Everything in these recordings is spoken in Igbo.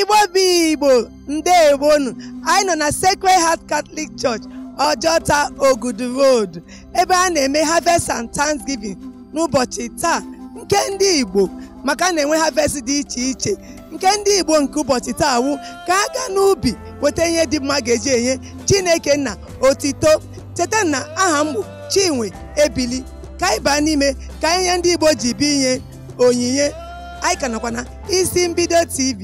igbo bi igbo ndewonu anyị nọ na Sacred Heart Catholic Church Ojota Ogudu Road ebe a na-eme harvest and thanksgiving n'ụbọchị taa nke ndị igbo maka na-enwe harvest dị iche iche nke ndị igbo nke ụbọchị taa wu ka a gaa n'ubi weta ihe dị mma ga-eji enye chineke na otito cheta na aha mbụ chinwe ebili ka anyị baa n'ime ka ihe ndị igbo ji bi inye onyinye anyị ka nọkwa na isi mbido tv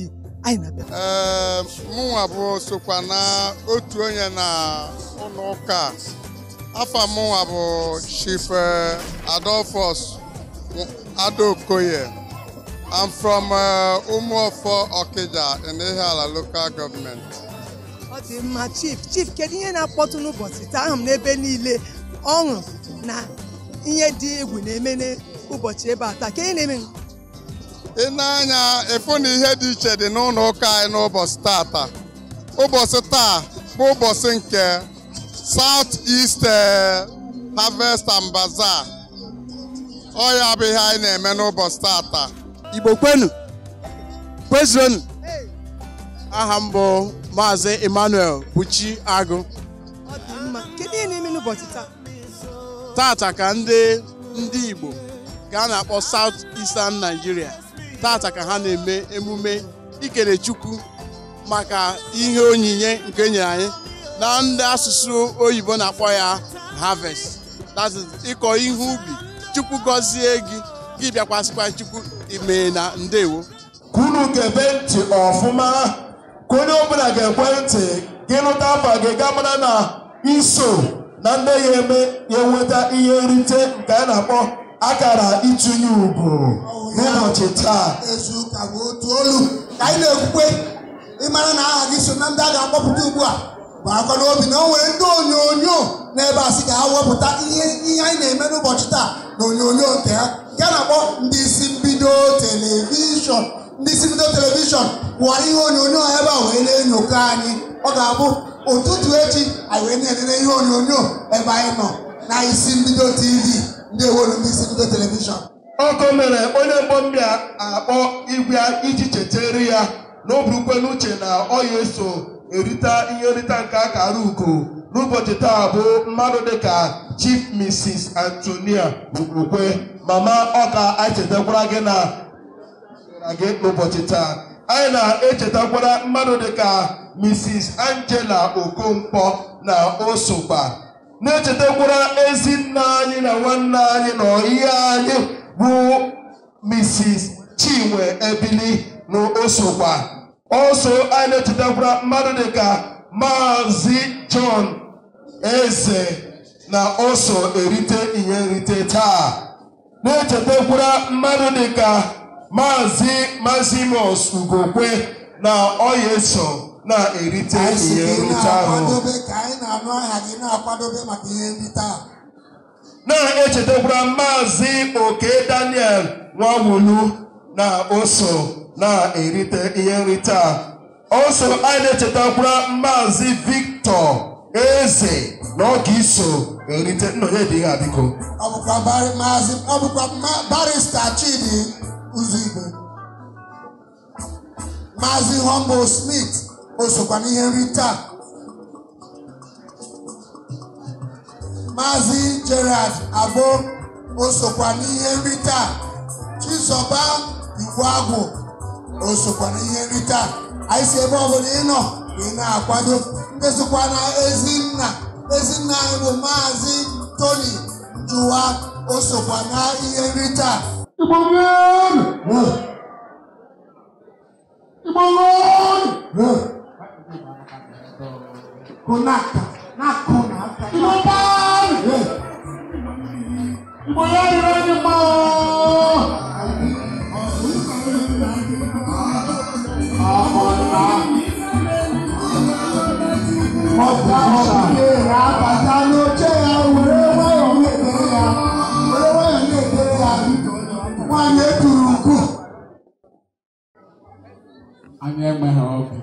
ee ehm, mụnwa bụ sokwa na otu onye na ụlọ ụka afọ mụnwa bụ Chief eh, Adolphus Adokoye I'm from eh, Umuofo ọkịja in ala local government ọ dị mma chief chief kedu ihe na-akpọtụ n'ụbọchị taa ahụ n'ebe niile ọṅụ na ihe dị egwu na-eme n'ụbọchị ebe a taa Kedu na-eme ị na-anya ịfụ na ihe dị iche dị n'ụlọ ụka anyị n'ụbọchị taata. ụbọchị taa bụ ụbọchị nke South East eh, Harvest and Bazaar ọ ya bụ anyị na-eme n'ụbọchị taata Igbo kwenu kwezuronu aha mbụ bụ Maazị Emmanuel Buchi Agụ tata ka ndị ndị Igbo ga na-akpọ South Eastern Nigeria tata ka ha na-eme emume ikere chukwu maka ihe onyinye nke e nyere anyị na ndị asụsụ oyibo na-akpọ ya harvest that is ịkọ ihe ubi chukwu gọzie gị gị bịakwasịkwa chukwu ime na ndewo ka unu ga-ebe ntị ọfụma ka onye ọbụla ga-ekwe ntị gị lụta afa gị ga na iso na ndị ya eme ya enweta ihe nrite nke a na-akpọ akara itunye ugwu n'ụbọchị taa ezu ụka bụ otu olu ka anyị na-ekwukwe ịmara na aha gị so na ndị a ga-akpọpụta ugbu a bụ akwa n'obi na o nwere ndị onyonyo n'ebe a sị ka ha wepụta ihe ihe anyị na-eme n'ụbọchị taa na onyonyo nke ha nke na-akpọ ndị isi mbido telivishọn ndị isi mbido telivishọn wara ihe onyonyo ebe a wee na-enyokọ anyị ọ ga-abụ ụtụtụ echi anyị wee na ihe onyonyo ebe anyị nọ na isi mbido tv ndị ewero ndị isi mbido telivishọn Ọkụ mere onye mbọ mmiri akpọ igwe iji chetere ya na oburukwe n'uche na ọ ya eso erita ihe nrita nke akara uko. ugo n'ụbọchị taa bụ mmadụ dịka chief mrs antonia ugbokwe mama ọka anyị chetakwara gị na gị n'ụbọchị taa anyị na-echetakwara mmadụ dịka mrs angela okonkwo na osokwa na-echetakwara ezi nna anyị na nwanne anyị na ọyị anyị who Mrs. Chinwe Ebili n'osokwa osokwa oso a na-echetakwara mmadụ dịka Maazị John Eze na oso erite ihe nrite taa na-echetakwara mmadụ dịka Maazị Mazimus Ugokwe na ọya na-erite ihe nrite ahụ na-echetakwa maazị oke daniel nwawulu na oso na-erite ihe nrite a oso anyị na-echetakwara maazị victor eze na ọ ga iso erite nnọnye dị ha biko ọ bụkwa barista chidi uzigwe maazị humble smith osokwa n'ihe nrite a Mazi Gerald Abo osokwa n'ihe nrite Chizoba Igweagwụ osokwa n'ihe nrite anyị si ebe ọbụla ị nọ ị na-akwado ndị na Ezinna Ezinna anyị bụ Maazị Tony Njuwa osokwa na ihe nrite Konaka, na kona, bóyá irọ́ ni mọ́ ọ́. ọmọ ńlá ọgbà ọ̀ṣà ra bàtà lójẹ́ ya wèrè wáyọ̀ ní èdè ya wèrè wáyọ̀ ní èdè ya wọ́n yẹ dùrù kù. anyị enweghị ọgụ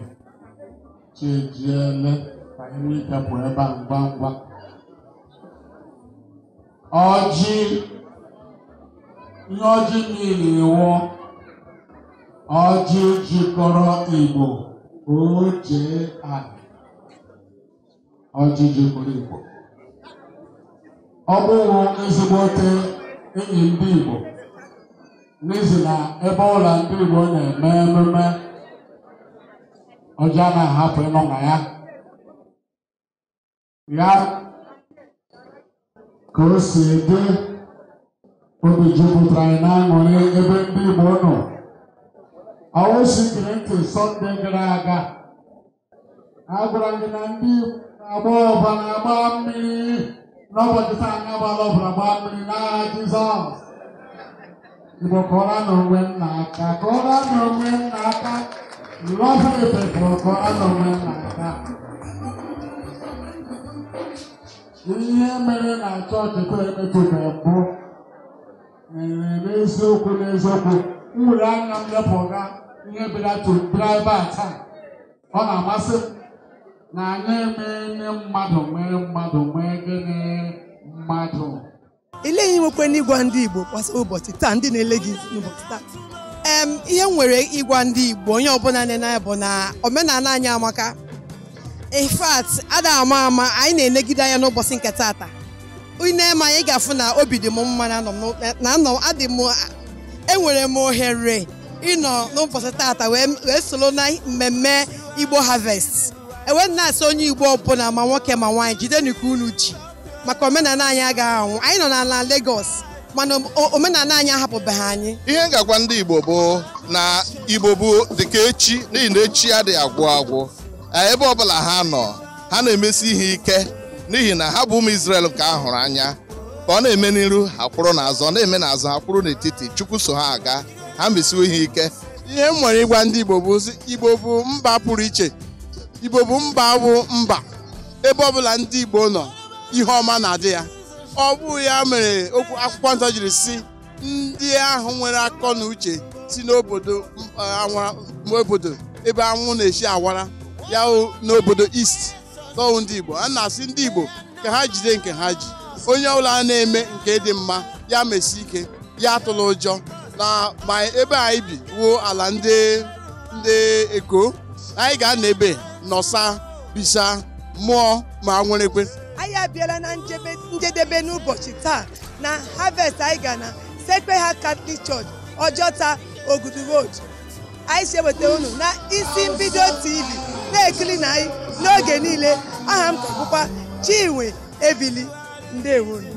chi ejiele ka anyị nwee ike pụọ ebe a ngwa ngwa ọjị ihe ọjị niile ewu ọjị jikọrọ igbo oche anị ọjị jikọrọ igbo ọ bụrụ ezigbote enyi ndị igbo n'izu na ebe ụlọ ndị igbo na-eme ememe ọjị a na-ahapụ ịnọ na ya ya ka o si dị obi jupụtara anyị n'aṅụrị ebe ndị Igbo nọ awosi gere ntị sọnde gara aga agwara gị na ndị na-agba ọba na-agba mmiri n'ụbọchị taa anyị agbala ọbara gbaa mmiri n'agha Jizọs Igbo kọrọ na onwe nna aka kọrọ na onwe nna aka lọfụ ife kọrọ na onwe nna aka ihe mere na chọọchị koemeto na mbụ mere n'eziokwu n'eziokwu nwere anya m lepụga ihe bịratụdraịba taa ọ na-amasị m na anyị emeele mmadụ mee mmadụ nwee gịnị mmadụ ile ihe nwekwe n'ịgwa ndị Igbo gbasara ụbọchị taa ndị na-ele gị n'ụbọchị taa ee ihe m nwere ịgwa ndị Igbo onye ọbụla na-ene ya bụ na omenala anyị amaka in ada ama ama anyị na-enegide anya n'ụbọchị nke taata ine ma anyị ga-afụ na obi dị m mma na adị m enwere m ohere ịnọ n'ụbọchị taata wee soro na mmemme igbo harvest enwe na onye igbo ọbụla ma nwoke ma nwaanyị jide ka unu ji maka omenala anyị agaghị anwụ anyị nọ n'ala Lagos mana omenala anyị ahapụbeghị anyị ihe ngagwa ndị igbo bụ na igbo bụ dịka echi n'ihi na echi adịghị agwụ agwụ Eh, ebe ọbụla ha nọ ha na-emesi ihe ike n'ihi na ha bụ ụmụ isrel nke a hụrụ anya ka ọ na-eme n'iru ha kwụrụ n'azụ na-eme n'azụ ha kwụrụ n'etiti Chukwu so ha aga ha mesiwo ihe ike ihe m nwere ịgwa ndị Igbo bụ Igbo bụ mba pụrụ iche Igbo bụ mba bụ mba ebe ọbụla ndị Igbo nọ ihe ọma na-adị ya ọ bụ ya mere okwu akwụkwọ nsọ jiri si ndị ahụ nwere akọ na uche si n'obodo eh, obodo ebe anwụ na-esi awara ya n'obodo East tọwụ ndị Igbo a na-asị ndị Igbo ka ha jide nke ha ji onye ọbụla a na-eme nke dị mma ya mesi ike ya tụrụ ụjọ na ma ebe anyị bi wuo ala ndị ndị Eko anyị ga-anọ ebe nọsa bisa mụọ ma nwerekwe anyị abịala na njedebe n'ụbọchị taa na harvest anyị ga na Sacred Heart Catholic Church Ojota Ogudu Road anyị si eweta unu na isi mbido TV na-ekiri na anyị n'oge niile aha m ka Chinwe Ebili ndewonu